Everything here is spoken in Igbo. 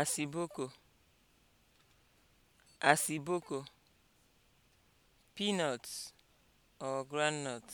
asiboko asiboko peanuts or groundnut